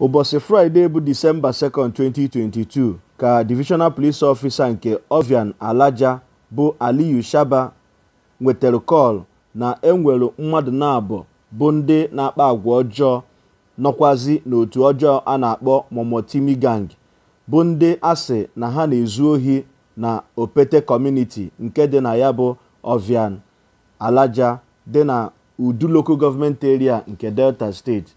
ụbọchị fraịde bụ disemba 2 2022 ka divisional police officer nke ovian alaja bụ aliyu shaba nwetara kọl na enwere mmadụ na-abụ bụ ndị na-akpa agwa ọjọọ nọkwazi n'otu ọjọọ a na-akpọ momotimi gang bụ ndị asị na ha na-ezu ohi na opete kọmuniti nke dị na ya bụ ovian alaja dị na udu local government area nke delta steeti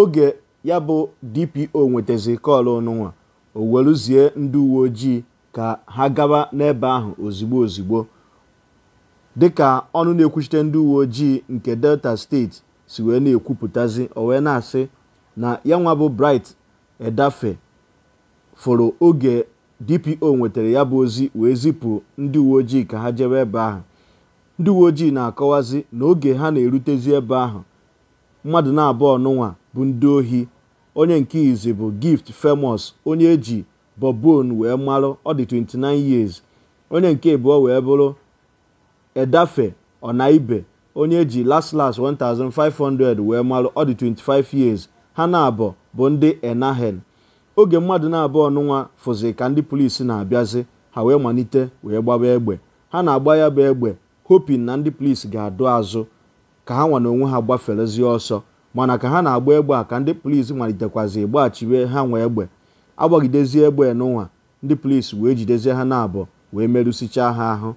oge ya bụ dpo nwetazi kọl ọnụnwa o weluzie ndị uwe ojii ka ha gaba n'ebe ahụ ozigbo ozigbo dịka ọnụ na-ekwuchite ndị uwe ojii nke delta steeti si wee na-ekwupụtazi o wee na-asị na ya nwa bụ bright edafe fụrụ oge dpo nwetara ya bụ ozi wee zipụ ndị uwe ojii ka ha jebe ebe ahụ ndị uwe ojii na-akọwazi na oge ha na-erutezi ebe ahụ mmadụ na-abụọ ọnụnwa bụ ndị ohi onye nke izi bụ gift famous onye e ji bobon wee marụ ọ dị 29 years onye nke ịbụọ wee bụrụ edafe ọnaibe onye eji last last 1500 wee marụ ọ dị 25 years ha na-abọ bụ ndị enahen oge mmadụ na abụ ọnụnwa fụzi ka ndị polisi na-abịazi ha wee malite wee gbaba egbe ha na-agba ya bụ egbe hopin na ndị polisi ga-adụ azụ ka ha nwa na onwe ha gbaferezie ọsọ mana ka ha na-agba egbe a ka ndị polisi malitekwazi ịgbaghachiwe ha nwee egbe agbagidezie egbe n'ụwa ndị polisi wee jidezie ha na-abụ wee merụsichaa ha ahụ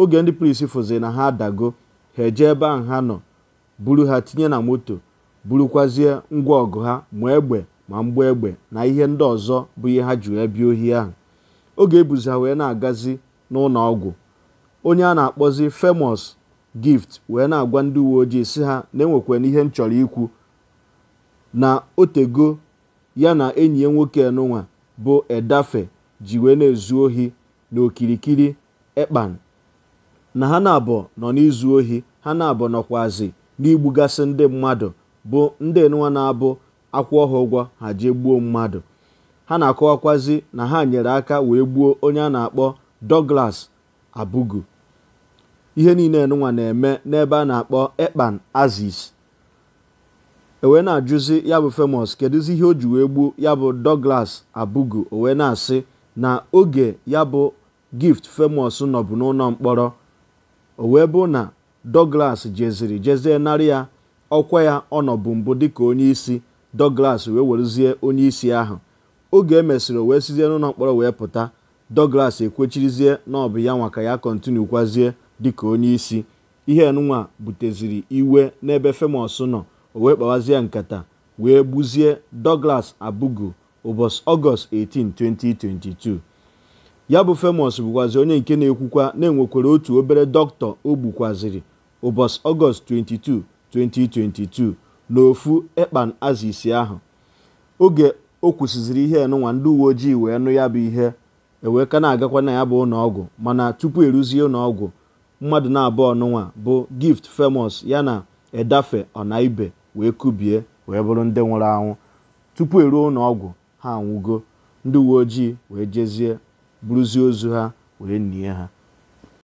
oge ndị polisi fụziri na ha adago ha eje ebe ahụ ha nọ buru ha tinye na moto burukwazie ngwa ọgụ ha ma egbe ma mgbu egbe na ihe ndị ọzọ bụ ihe ha ji wee ohi ahụ oge ebuzi ha wee na-agazi n'ụlọ ọgwụ onye a na-akpọzi Famous gift wee na-agwa ndị uwe ojii si ha na-enwekwana ihe m chọrọ ikwu na otego ya na enyi ya nwoke enụnwa bụ edafe ji wee na-ezu ohi na okirikiri ekpan na ha na abọ nọ n'izu ohi ha na abọ nọkwazi n'igbugasị ndị mmadụ bụ ndị nwa na-abụ akwụ ọha ha ji gbuo mmadụ ha na-akọwakwazi na ha nyere aka wee gbuo onye a na-akpọ Douglas Abugu ihe niile nwa na-eme n'ebe a na-akpọ ekpan aziz ewee na-ajụzi ya bụ famous kedụzi ihe o ji wee gbuo ya bụ Douglas Abugu owee na-asị na oge ya bụ gift femos nọbụ n'ụlọ mkpọrọ owee bụ na Douglas jeziri jezie narị ya ọkwa ya ọnọbụ mbụ dịka onye isi Douglas wee werezie onye isi ahụ oge emesịrị owee sizie n'ụlọ mkpọrọ wee pụta Douglas ekwechirizie na ọ bụ ya nwa ka ya kọntinu kwazie dịka onye isi ihe nwa buteziri iwe n'ebe Famous nọ o wee kpawazie nkata wee gbuzie Douglas Abugu ụbọchị Ọgọst 18 2022 ya bụ Famous bụkwazi onye nke na-ekwukwa na-enwekwara otu obere dọkịta o gbukwaziri ụbọchị Ọgọst 22 2022 n'ofu ekpan isi ahụ oge o kwụsịziri ihe enụnwa ndị uwe ojii wee nụ ya bụ ihe eweka na-agakwa na ya bụ ụlọọgwụ mana tupu eruzie ụlọọgwụ mmadụ na abụ ọnụnwa bụ gift famous ya na edafe ọnaibe wee kubie wee bụrụ ndị nwụrụ anwụ tupu eruo n'ọgwụ ha anwụgo ndị uwe ojii wee jezie bụrụzie ozu ha wee nie ha